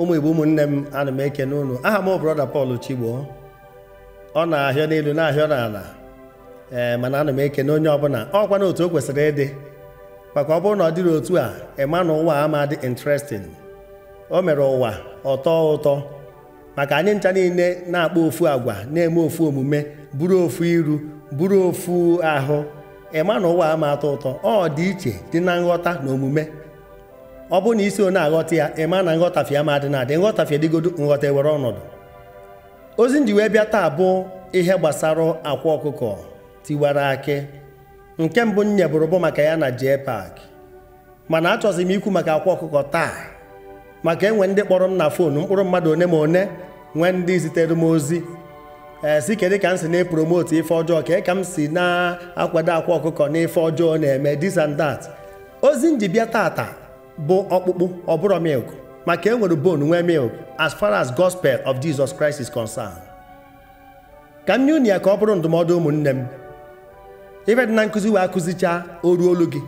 ụmụ igbo ụmụnne m ana m ekene unu aha m brọda Paul Chigbo ọ na-ahịọ n'elu na-ahịọ n'ala ee eh, mana ana m ekene onye ọbụla ọkwa na otu o kwesịrị ịdị maka ọ bụrụ na ọ dịrị otu a ịma na ụwa ama dị interesting o mere ụwa ọtọ ụtọ maka anyị ncha niile na-akpa ofu agwa na-eme ofu omume bụrụ ofu iru bụrụ ofu ahụ ịma na ụwa ama atọ ụtọ ọ dị iche dị na nghọta na omume ọ bụ na isi o aghọta ya ịma ma na nghọtafie ma adị na-adị nghọtafie dịgodo nghọta were ọnọdụ ozi ndị wee bịa taa bụ ihe gbasara akwa ọkụkọ tiwara akị nke mbụ bụ maka ya na jee pak mana achọzi m ikwu maka akwa ọkụkọ taa maka enwe ndị kpọrọ m na fonu mkpụrụ mmadụ one ma one nwee ndị zitere m ozi ee si kedu ka m si na-epromoti ife ọjọọ ka ka m si na-akwado akwa ọkụkọ na ife ọjọọ na-eme this and that ozi m ji bịa tata bụ ọkpụkpụ ọ bụrụ milk maka e nwere bone nwee milk as far as gospel of Jesus Christ is concerned ka m nye unu ya ka ọ bụrụ ndụmọdụ ụmụnne m ife dị na nkụzi wee akụzichaa oru olu gị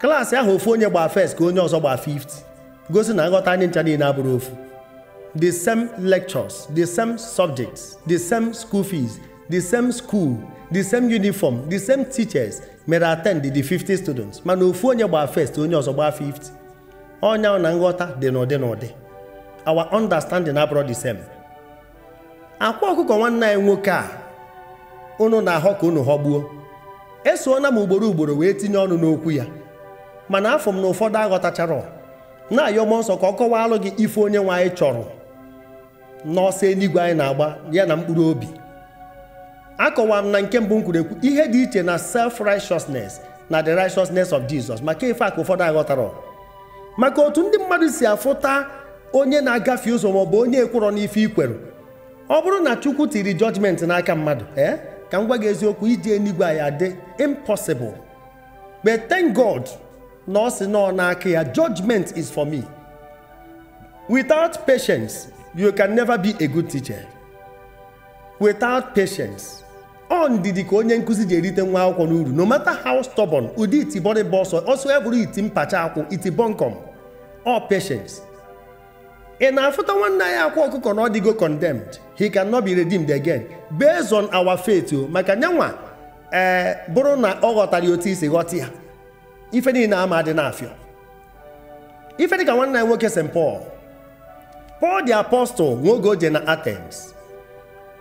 klaasị ahụ ofu onye gbaa first ka onye ọzọ gbaa 50 gosi na nghọta anyị ncha niile abụrụ ofu the same lectures the same subjects the same school fees the same school the same uniform the same teachers mere attend the 50 students mana ofu onye gbaa first onye ọzọ gbaa 50 ọnya na nghọta dị n'ụdị n'ụdị our understanding abụrụ the same akwa ọkụkọ nwanne anyị nwoke a unu na-ahọ ka unu ghọgbuo esoona m ugboro ugboro wee tinye ọnụ n'okwu ya mana afọ m na ụfọdụ aghọtachara na-ayọ m nsọ ka ọ kọwalụ gị ife onye nwe anyị chọrọ ọsọ eluigwe anyị na-agba ya na mkpụrụ obi akọwara m na nke mbụ m kwuru ekwu ihe dị iche na self righteousness na the righteousness of Jesus maka ife a ka ụfọdụ aghọtara maka otu ndị mmadụ si afụta onye na-agafe ụzọ maọbụ onye ekworo n'ife ikwere ọ bụrụ na chukwu tiri jọjmentị n'aka mmadụ ee eh, ka m gwa gị eziokwu iji enigwe anyị adị impossible but thank God na ọ sị nọ n'aka ya judgment is for me without patience you can never be a good teacher without patience ọ ndidi ka onye nkụzi ji erite nwa akwụkwọ n'uru no matter how stubborn ụdị itibọrịba ọsọ ọsọ eburu iti mpacha akwụ iti all patience ị na-afụta nwanne ya akwa ọkụkọ na ọ dịgo condemned he cannot be redeemed again based on our faith o oh, maka nyanwa ee eh, bụrụ na ọ ghọtara ya otu isi ghọta ya ife niile ama dị n'afịọ ife dịka nwanne ya nwoke St Paul Paul the apostle nwoge o je na Athens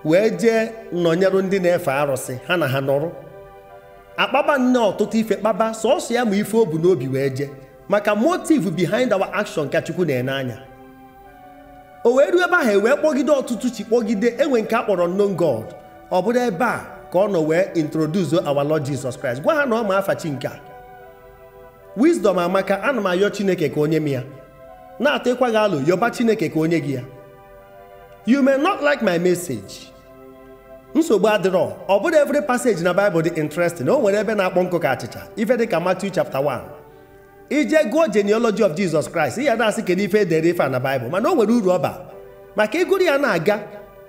wee jee nọnyerụ ndị na-efe arụsị ha na ha nọrụ akpaba nne ọtụtụ ife kpaba sọsọ ya ma ife o bu n'obi wee jee maka motive behind our action ka chukwu na-ene anya o wee ruo ebe ahụ e wee kpọgide ọtụtụ chi kpọgide enwe nke a kpọrọ unknown god ọ bụrụ ebe a ka ọ nọ wee introduce our lord jesus christ gwa ha na ọ ma afa chi nke a wisdom amaka ana m ayọ chineke ka onye m ya na-atọ ịkwa gị alụ yọba chineke ka onye gị ya you may not like my message nsogbu adịrọ ọ bụrụ every passage na bible dị interesting o nwere ebe na-akpọ nkụ ka achịcha ife dị ka Matthew chapter ije gụọ genealogy of Jesus Christ ya na-asị kedu ife edere ife na Baịbụl mana o nwere uru ọ maka ịgụrụ ya na-aga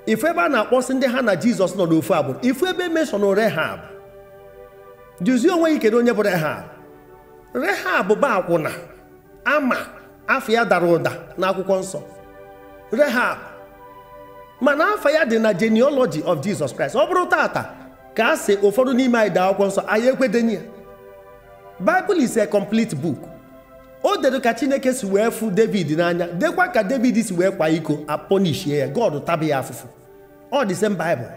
ife ebe a na-akpọsị ndị ha na Jizọs nọ n'ofu agbụrụ ifu ebe emeshọn Rehab duzie onwe gị kedu onye bụ Rehab Rehab bụ akwụna ama afọ ya dara ụda n'akwụkwọ nsọ Rehab mana afọ ya dị na genealogy of Jesus Christ ọ bụrụ tata ka a sị ụfọdụ n'ime anyị daa akwụkwọ nsọ anyị ekwedenye ya Bible is a complete book o dedo ka chineke si wee fụ david n'anya dekwa ka david si wee kwa iko aponishie ya god taba ya afụfụ ọ dị same bible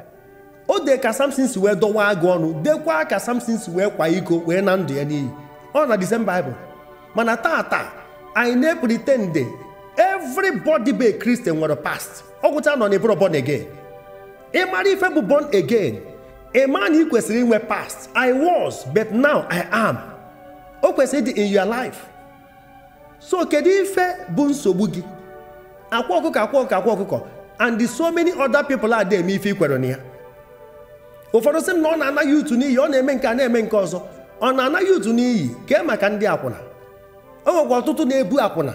o dee ka samson si wee dọwa agụ ọnụ dekwa ka samson si wee kwa iko wee na ndụ ya n'iyi ọ na the bible mana taa anyị na-epretende everybody be kristian nwere past ọgwụcha nọ n'ebụrụ born again ị mara ife bụ born again ị na ị kwesịrị inwe past i was but now i am o kwesịrị ịdị in your life so kedu ife bụ nsogbu gị akwa ọkụkọ akwa ọkụkọ akwa ọkụkọ and the so many other people are there eme ife ikwere na ya ụfọdụ sị m na ọ na-anaghị utu n'iyi ọ na-eme nke a na-eme nke ọzọ ọ na-anaghị utu n'iyi kee maka ndị akwụna o nwekwa ọtụtụ na-ebu akwụna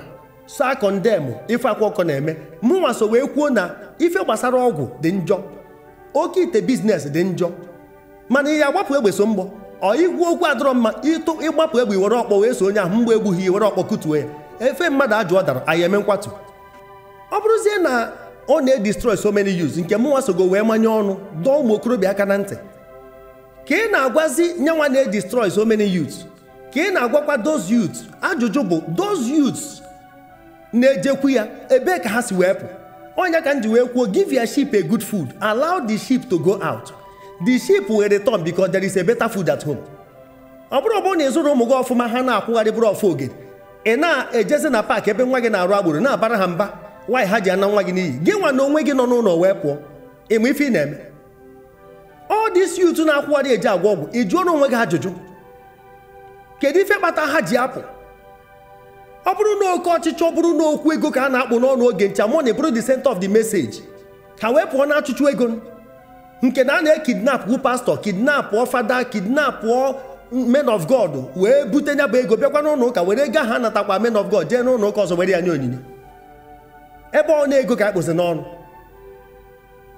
so akọndemụ ife akwa ọkọ na-eme mụnwa so wee kwuo na ife gbasara ọgwụ dị njọ oke ite biznes dị njọ mana ihe agbapụ egbe so mgbọ ọ igwu okwu adọrọ mma ịtụ ịgbapụ egbe iwere ọkpọ wee so onye ahụ mgbe egbughị iwere ọkpọ kụtuo ya efe mmadụ ajụ ọ dara anyị eme nkwatu ọ bụrụzie na ọ na-edestroy so many yus nke mụnwa sogo wee manye ọnụ dọọ ụmụ okorobịa aka na ntị ka ị na-agwazi nyanwa na-edestroy so many youths ka ị na-agwakwa dos yut ajụjụ bụ those yut na-ejekwu ya ebee ka ha si wee pụ ọnya ka m ji wee kwuo give your a good food allow the ship to go out the sheep will return because there is a better food at home ọ bụrụ ọbụrụ na ịzụrụ ụmụ gị ọfụma ha na-akwụgharị bụrụ ọfụ oge ị na-ejezi na paakị ebe nwa gị na-arụ agbụrụ na-abara ha mba nwaanyị ha ji ana nwa gị n'iyi gị nwa na onwe gị nọ n'ụlọ wee pụọ ịma ife ị na-eme ọ dị isi utu na-akwụgharị eji agwa ọgwụ ị jụọ n'onwe gị ajụjụ kedu ife kpata ha ji apụ ọ bụrụ na oke ọchịchị ọ bụrụ na okwu ego ka a na-akpụ n'ọnụ oge ncha money bụrụ the center of the message ka wee pụọ na achụchụ ego nke na a na-ekidnapụ pastọ kidnapụọ fada kidnap men of god wee bute nya bụ ego bịakwa n'ụlọ ụka were ga ha natakwa men of god jee n'ụlọ ụka ọzọ were ya nye onyinye ebe ọ na-ego ka akpụzi n'ọnụ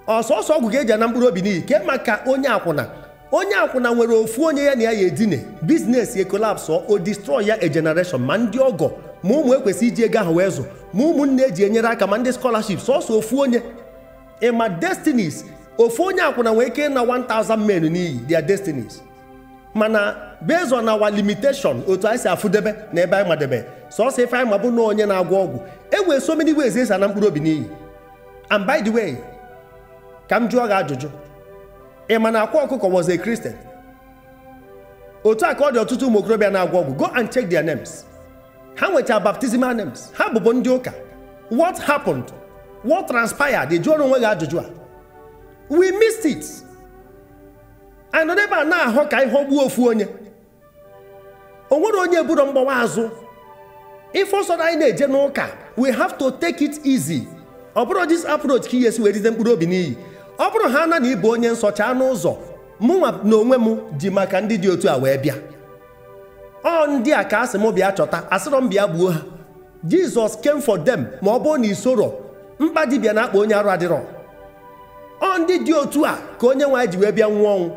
ọsọsọ ọgwụ ga-eji ana mkpụrụ obi n'iyi ke maka onye akwụna onye akwụna nwere ofu onye ya na ya ya edine biznes e kolapsụ o destroy ya a ma ndị ọgọ ma ụmụ ekwesị iji ego ahụ wee zụ ma ụmụnne eji enyere aka ma ndị scholarship sọsọ ofu onye ịma destinis ofu onye akwụna nwee ike na 1000 men n'iyi their destinies mana based on our limitation otu anyị si afụdebe na ebe anyị madebe sọsọ ife anyị ma bụ na onye na-agwọ ọgwụ e nwere so many ways esi ana mkpụrụ obi n'iyi and by the way ka m jụọ gị ajụjụ ị ma na akwa ọkụkọ was a Christian otu a ka ọ dị ọtụtụ ụmụ okorobịa na-agwọ ọgwụ go and check their names ha nwechara baptismal names ha bụbụ ndị ụka what happened what transpired jụọrọ onwe gị ajụjụ a we missed it anọdụ ebe a na-ahụ ka ihe ogbuo ofu onye o nwere onye buru mgbawa azụ ife ọsọ anyị na-eje n'ụka we have to take it easy ọ bụrụ this approach ka ihe esi wee rite mkpụrụ obi n'iyi ọ bụrụ ha na na onye nsọcha n'ụzọ mụnwa na onwe m ji maka ndị dị otu a wee bịa ọ ndị a ka asị m bịa chọta asịrọ m bịa gbuo ha jizọs came for them ma ọ bụrụ na isoro mkpa dibịa na-akpa onye arụ adịrọ ọ ndị dị otu a ka onye nwe anyị ji wee bịa nwụọ ọnwụ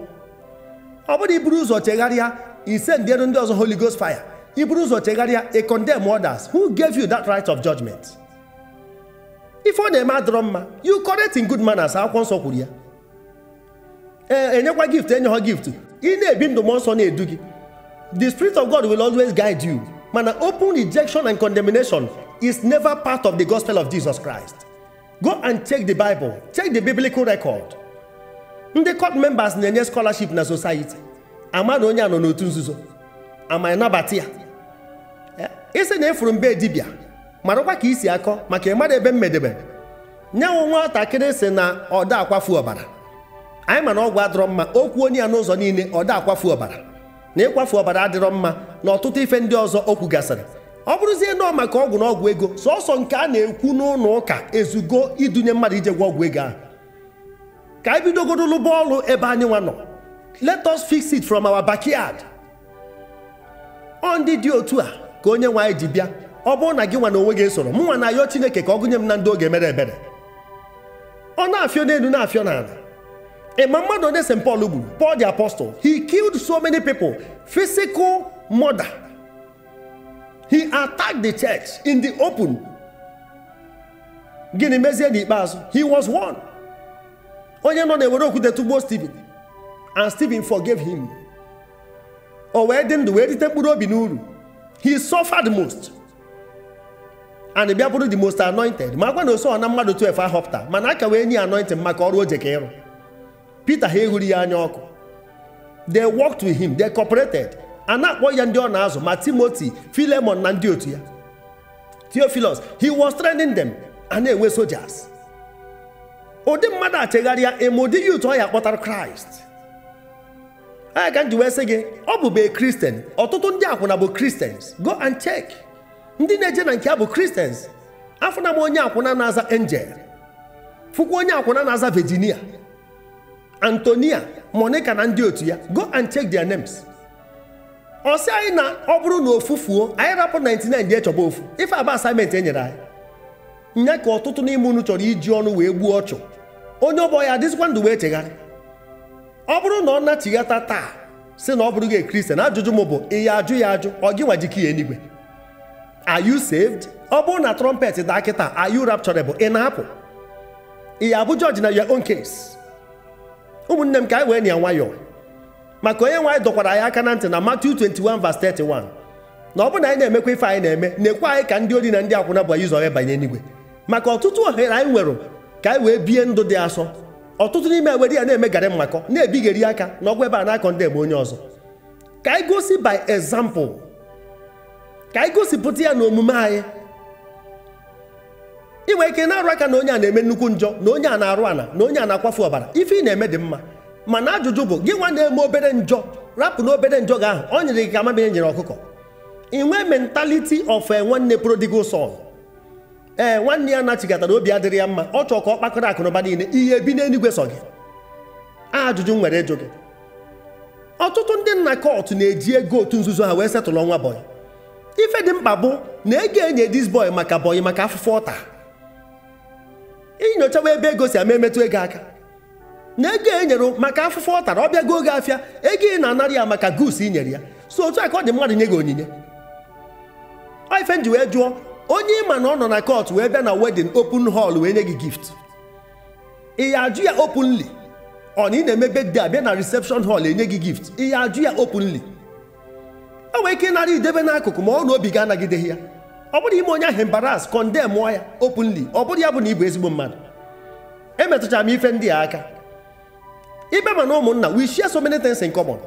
ọ bụrụ iburu ụzọ chegharịa ise ndị elu ndị ọzọ Holy Ghost fire iburu ụzọ chegharịa a condemn others who gave you that right of judgment ife ọ na-eme adọrọ mma you correct in good manners akwụkwọ nsọ kwuru ya ee enyekwa gift enye ha gift ị na-ebi ndụ mmụọ nsọ na-edu gị the spirit of God will always guide you mana open rejection and condemnation is never part of the gospel of Jesus Christ go and check the bible check the biblical record ndị court members na-enye scholarship na society na onye a nọ n'otu nzuzo ama nabata ya eh, isi na efuru mbe dibịa marakwa ka isi akọ maka ịmara ebe mmedebe nye nwa nwatakịrị si na ọda akwafu ọbara anyị mana ọgwụ adịrọ mma okwu onye ya n'ụzọ niile ọda akwafu ọbara na ịkwafu ọbara adịrọ mma na ọtụtụ ife ndị ọzọ okwu gasịrị ọ bụrụzie nọọ maka ọgwụ na ọgwụ ego sọsọ nke a na-ekwu n'ụlọ ụka ezugo idunye mmadụ ije gwa ọgwụ ego ahụ ka anyị bidogodolu bọọlụ ebe anyị nwa nọ let us fix it from our backyard ọ ndị dị otu a ka onye nwe anyị ji bịa ọ bụrụ na gị nwa na onwe gị soro, m nwa na ayọ Chineke ka ọ gụnye m na ndị oge mere ebere ọ na-afịọ n'elu na-afịọ n'ala ịma mmadụ onye St Paul gburu Paul the Apostle he killed so many people physical murder he attacked the church in the open gịnị mezie n'ikpeazụ he was one onye nọ na-ewere okwute tụgbuo stephen and stephen forgave him o wee dị ndụ wee rite mkpụrụ obi n'uru he suffered most and bịa bụrụ the most anointed Ma na oso na mmadụ 12 ahọpụta mana aka wee nye anointing maka ọrụ oje ka ịrụ peter ha eghuru ya anya ọkụ they worked with him they cooperated a na-akpọ ya ndị ọ na-azụ ma timoti filemon na ndị otu ya theophilus he was training them oh, a na-enwe soldiers ụdị mmadụ achegharịa ịma ụdị ya ụtụ ọ ya kpọtara kraịst anya ka m ji wee sị gị ọ bụbe kristian ọtụtụ ndị akwụna bụ kristians go and check ndị na-eje na nke ya bụ kristians afụna m onye akwụna na-aza angel fụkwa onye akwụna na-aza virginia antonia monica na ndị otu ya go and check their names ọ sị anyị na ọ bụrụ na ofufuo anyị rapụ 99 dị echọba ofu ife aba asaịmentị e nyere anyị nye ka ọtụtụ n'ime unu chọrọ iji ọnụ wee gbuo ọchụ onye ọbọ ya adịzikwa ndụ wee chegharị ọ bụrụ na ọ nachighata taa si na ọ bụrụ gị kristian ajụjụ m bụ ya ajụ ya ajụ ọ gị nwa jiki ya enigwe are you saved ọ bụrụ na trọmpet daa kịta are you rapturable ị na-apụ ị ya abụ jọji na your own case ụmụnne m ka anyị wee na ya nwayọọ maka onye nwe anyị dọkwara anyị aka na ntị na Matthew 21:31 na ọ bụrụ na anyị na-emekwa ife anyị na-eme na-ekwe anyị ka ndị ori na ndị akwụna bụ anyị zọrọ banye n'igwe maka ọtụtụ ohere anyị nwere ka anyị wee bie ndụ dị asọ ọtụtụ n'ime were ya na-emegara eme mmakọ na eri aka na ọgwụ ebe a na-akọ ndị ebe onye ọzọ ka anyị gosi by example ka anyị gosipụta ya na omume anyị inwe ike na-arụ aka na onye a na-eme nnukwu njọ na onye a na-arụ ana na onye a na-akwafu ọbara ife ị na-eme dị mma mana ajụjụ bụ gị nwa na-eme obere njọ rapụ na obere njọ gị ahụ ọ nyere gị ka amamihe nyere ọkụkọ inwe mentality of eh, nwanne prodigal son ee eh, nwanne ya nachigatara obi adịrị ya mma ọ chọọ ka ọ kpakọrọ akụnụba niile ihe bi n'eluigwe sọ gị ajụjụ nwere ịjụ gị ọtụtụ ndị nna kọtụ na-eji ego otu nzuzo ha wee setụlụ ọnwa bọyị ife dị mkpa bụ na ego enye dis boy maka bọyị maka afụfụ ọta inyochawa ebe ego si ama emetụ ego aka na ego e nyere maka afụfụ ọ tara ọ bịago oge afịa ego ị na-anara ya maka gus i nyere ya so otu a ka ọ dị mmadụ nye gị onyinye ife ji wee jụọ onye ịma na ọ nọ na kot wee bịa na wedin open hall wee nye gị gift ị ya ajụ ya openly ọ na ị na emebe di abịa na reception hall enye gị gift ị ya ajụ ya openly e nwere ike ịnara idebe n'akụkụ ma ọ na obi ga-anagideghị ya ọ bụrụ ime onye ahụ embaras kọndem ya openly ọ bụrụ ya bụ na ị bụ ezigbo mmadụ emetụchara m ife ndị a aka ibe mana na ụmụnna we share so many things in common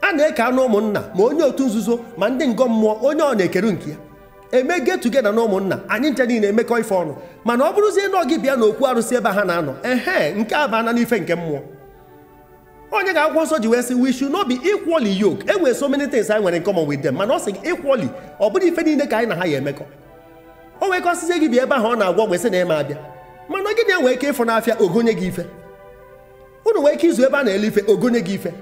a na-eke anụ ụmụnna ma onye otu nzuzo ma ndị ngọ mmụọ onye ọ na-ekere nke ya eme get together na ụmụnna anyị nche niile emekọ ife ọnụ mana ọ bụrụzie na gị bịa n'okwu arụsị ebe ha na-anọ ehe nke a baana n'ife nke mmụọ onye ga-akwụkwọ nsọ ji wee sị we n'obi not be yok e nwere so many things anyị nwere in common with mana ọ sị gị equally ọ bụrụ ife niile ka anyị na ha ya emekọ o nwekọsizie gị bịa ebe ahụ ọ na-agwọ gbesị na ịma abịa mana gị na-enwe ike ịfụ n'afịa ogonye gị ife unu nwee ike izu ebe a na-ele ife ogonye gị ife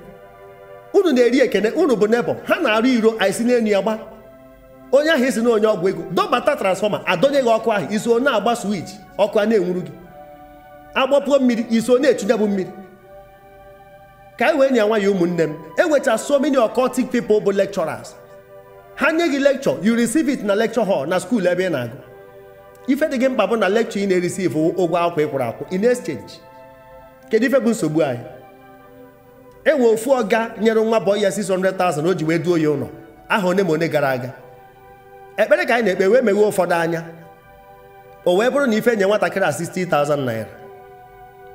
unu na-eri ekene unu bụ nebo ha na-arụ iro anyị si n'elu ya gba onye ahụ isi na onye ọgwụ ego dọbata transfọma adọnye gị ọkụ ahụ iso na-agba swich ọkụ a na-enwuru gị agbapụo mmiri iso na-echunye bụ mmiri ka anyị wee nye nwa ya ụmụnne m enwecha so many occultic people bụ lecturers ha nye gị lecture you receive it na lecture hall na skuul ebe ị na-agụ ife dị gị mkpa bụ na lecture ị na-erisive ụgwọ akwụkwọ ịkwụrụ kwụrụ akwụ in exchange kedu ife bụ nsogbu anyị enwe ofu ọga nyere nwa bọọ ya 600,000 o ji wee duo ya ụlọ aha one ma one gara aga ekpere ka anyị na-ekpe wee meghee ụfọdụ anya o wee bụrụ na ife nye nwatakịrị a 60,000 naira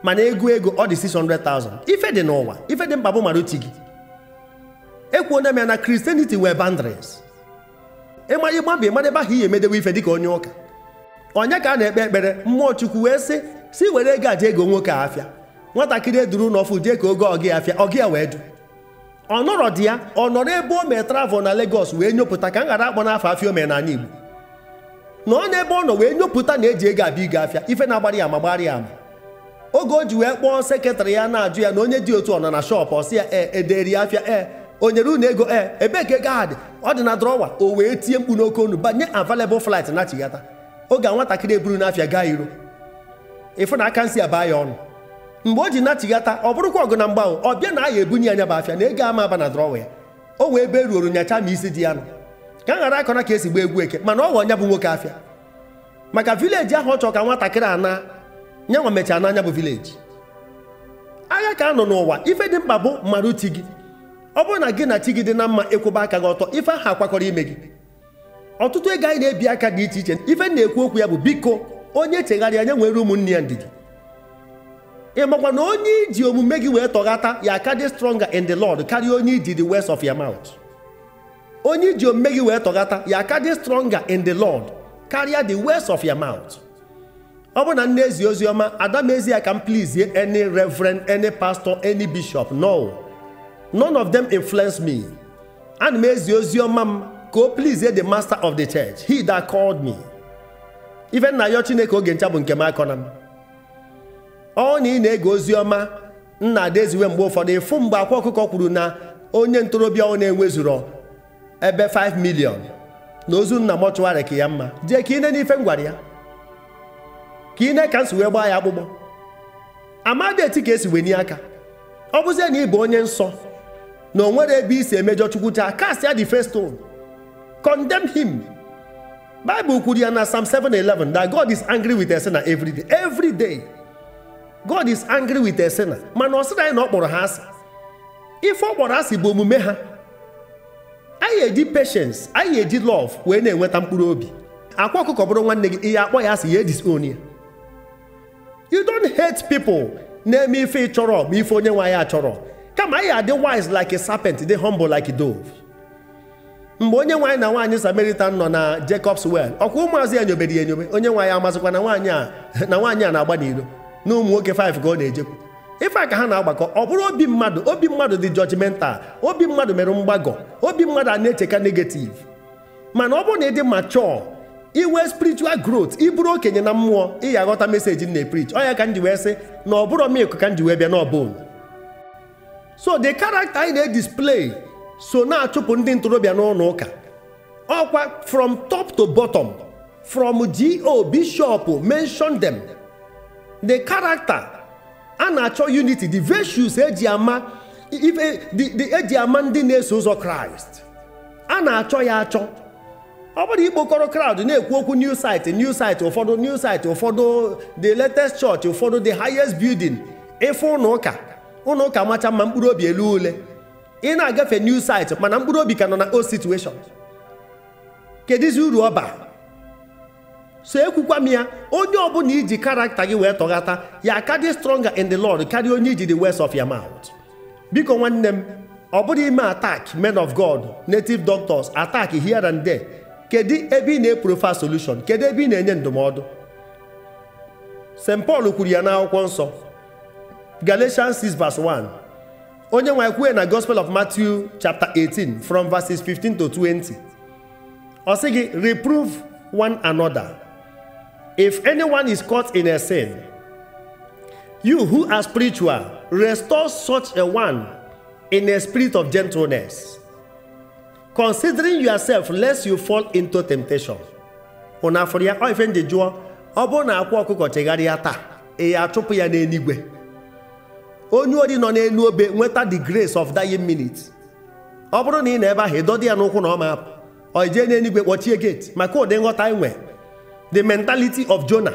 mana ego ego ọ dị 600,000 ife dị n'ụwa ife dị mkpa bụ mara otu gị ekwuona m ya na kristianity wee bandres ịma ịgba mba ịmara ebe ahụ ihe emedewe ife dịka onye ụka onye ka a na-ekpe ekpere mmụọ chukwu wee sị si were ego aja ego nwoke afịa nwatakịrị eduru n'ọfụ jee ka oge ọgị afịa ọgị ya wee du ọ nọrọ dị ya ọ nọrọ ebe o mee travel na Lagos wee nyopụta ka m ghara akpọ n'afọ afịa ome n'ala Igbo na ọ n'ebe ọ nọ wee nyopụta na eji ego abịa ịga afịa ife na-agbara ya ma gbara ya ama oge o ji wee kpọọ sekretarị ya na-ajụ ya na onye dị otu ọ nọ na shọpụ ọsị ya e eh, ederi ya afịa e o nyere unu ego e ebee ka ego dị ọ dị na drọwa o wee tie mkpu n'oke onu banye available flight na chighata oge a nwatakịrị eburu n'afịa gaa iro ịfụ na aka nsi abaa ya ọnụ mgbe o ji natighata ọ bụrụkwa ọgụ na mgbanwe ọ bịa na aya ebunye anya bụ afịa na ego ama aba na drọwa ya o wee be ruoro nyacha ma isi dị ya nọ ka a ghara akọna ka esi gba egwu eke mana ọ ghọ nya bụ nwoke afịa maka vileji ahụ ọ chọọ ka nwatakịrị ana nyanwa mechaa n'anya bụ vileji agha ka a nọ n'ụwa ife dị mkpa bụ mmadụ ti gị ọ bụrụ na gị na chi gị dị na mma ịkwụba aka gị ọtọ ife ahụ akwakọrọ ime gị ọtụtụ ego anyị na-ebi aka dị iche iche ife na-ekwu okwu ya bụ biko onye chegharịa nye nwere ụmụnne ya ndidi ị na onye iji omume gị wee tọghata ya aka dị stronger in the Lord karịa onye iji the west of your mouth onye iji omume gị wee tọghata ya aka dị stronger in the Lord karịa the west of your mouth ọ bụrụ na nne ezi ozi ọma ezi ya ka m any reverend any pastor any bishop no none of them influence me ana m ezi ozi ọma m ka o please the master of the church he that called me even na ya chineke oge ncha bụ nke m m ọ na ị na-ege ozi ọma nna adeziwe mgbe ụfọdụ ịfụ mgbe akwa ọkụkọ kwuru na onye ntorobịa ọ na-enwezuro ebe 5 milion na ozu nna mọchụwarị ka ya mma jee ka ine n'ife Ife gwara ya ka na-eka nsi wee gbaa ya akpụkpọ amadi eti ka esi wenye aka ọ bụzie na ị bụ onye nsọ na o nwere ebe isi emejọ chukwu taa cast ya the first stone him kwuru ya na Sam 7:11 that God is angry with a sinner every day every day god is angry with a sinner mana ọ sịrị anyị na ọ kpọrọ ha asị ife ọ kpọrọ asị bụ omume ha anyị eji patience anyị eji love wee na-enweta mkpụrụ obi akwa ọkụkọ bụrụ nwanne gị ihe akpọ ya asị ya disown ya you don't hate people na-eme ife ịchọrọ ma ife onye nwe anyị achọrọ kama anyị adị wise like a serpent dị humble like a dove mgbe onye nwaanyị na nwaanyị Samaritan nọ na Jacob's well ọkwa ụmụazị ya nyobere ya enyobe onye nwaanyị amazịkwa na nwaanyị a na-agba n'Iro. na ụmụ nwoke 5 ka ọ na-ejekwu ife a ka ha na-agbakọ ọ bụrụ obi mmadụ obi mmadụ dị jọjimental obi mmadụ mere mgbagọ obi mmadụ a na-echeka negativ mana ọ bụrụ na ịdị machọ iwe spiritual growth ịbụrụ okenye na mmụọ ịya ga-aghọta meseji na preach ọ ya ka m wee sị na ọ bụrụ milk ka nji wee bịa n'ọbụl so the character anyị na-edisplay so na-achụpụ ndị ntorobịa n'ụlọ ụka ọkwa from top to bottom from go bishọp mention them the character a na-achọ unity the virtues eji ama eji e ama ndị na-eso ụzọ kraịst a na-achọ ya achọ ọ bụrụ ikpokọrọ crowd na-ekwu okwu new site new site ụfọdụ new site ụfọdụ the latest church ụfọdụ the highest building ife ụlọ ụka ụlọ ụka macha mma mkpụrụ obi elu ule ị na-agafe new site mana mkpụrụ obi ka nọ na old situation kedizi uru ọba so ekwukwa m ya onye ọbụla iji karakta gị wee tọghata ya aka dị stronger in the Lord karịa onye iji the words of your mouth biko nwanne m ọ bụrụ ime attack men of God native doctors attack here and there kedu ebe ị na-eprofa solution kedu ebe ị na-enye ndụmọdụ St pal kwuru ya n'akwụkwọ nsọ Galatians 6 vers 1 onye nwe kwue na Gospel of Matthew chapter 18 from verses 15 to 20 ọ sị gị reprove one another If anyone is caught in a sin, you who are spiritual, restore such a one in a spirit of gentleness, considering yourself lest you fall into temptation. Unu afọrọ ya ọ ife ndị jụọ ọ bụrụ na akwụ ọkụkọ chegharịa taa ị achụpụ ya n'eluigwe onye ori nọ n'elu obe nweta the grace of dying minute ọ bụrụ na ị na ebe ahụ ịdọdị ya n'ụkwụ na ọ ma apụ ọ ije n'eluigwe kpọchie gate maka ụdị nghọta nwere the mentality of Jonah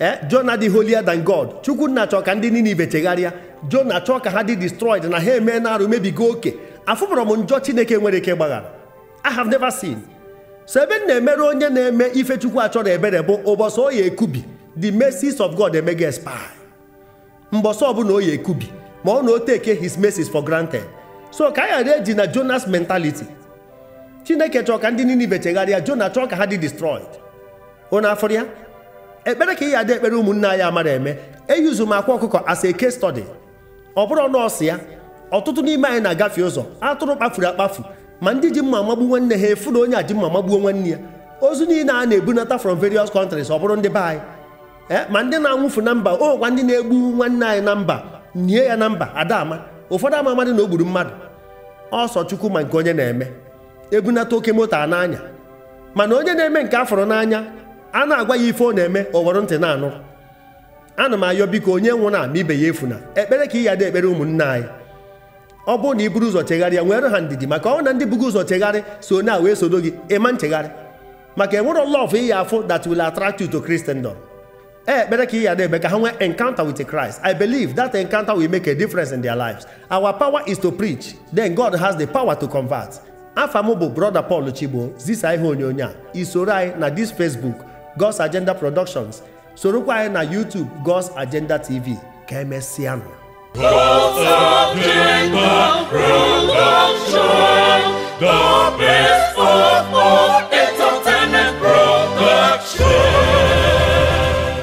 eh Jonah dị holier than God chukwu nna chọọ ka ndị Ninive chegharịa Jona chọọ ka ha dị destroyed na ha eme na arụ mebigo oke afụpụrụ m njọ Chineke nwere ike gbaghara I have never seen so ebe na-emere onye na-eme ife chukwu achọrọ ebere bụ ụbọchị oyi ekubi the mercies of God emega spy mbọsị ọbụla oyi ekubi ma ọ na o his mercies for granted so ka anyị ghara eji na Jonas mentality Chineke chọọ ka ndị Ninive chegharịa Jona chọọ ka ha dị destroyed unu afọrọ ya ekpere ka ị ya dị ekpere ụmụnne anyị amara eme eyuzu m akwa ọkụkọ as a case study ọ bụrụ nọọsụ ya ọtụtụ n'ime anyị na-agafe ụzọ atụrụ kpafuru akpafu ma ndị ji mma magbu nwanne ha efu na onye aji mma magbuo nwanne ya ozu niile a na-ebunata from various countries ọ bụrụ ndị be anyị eh, ma ndị na-anwụfu na mba o nwekwa ndị na-egbu nwanne anyị na mba nie ya na mba adama ụfọdụ ama amadị na o gburu mmadụ ọsọ chukwu ma nke onye na-eme ebunata oke moto a n'anya mana onye na-eme nke afọrọ n'anya a na-agwa ya ife ọ na-eme o ntị na-anụ ana m ayọ biko onye nwụrụ ama ibe ya efuna ekpere ka ị yada ekpere ụmụnna anyị ọ bụrụ na i buru ụzọ chegharịa nwere ha ndidi maka ọ na ndị bụgo ụzọ chegharị so na wee sodo gị ịma nchegharị maka enwere lọf iyi afụ that will attract you to Christendom e, ekpere ka ị yada ebe ka ha nwee encounter with Christ I believe that encounter will make a difference in their lives our power is to preach then God has the power to convert afa m bụ brother Paul Chigbo zisa ihe onyonyo a isoro anyị na this Facebook God's Agenda Productions sorokwa anyị na YouTube God's Agenda TV ka emesịanụ God's Agenda Production the best of all